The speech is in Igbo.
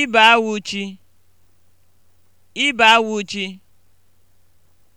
Ibe awụ chi, Ibe awụ chi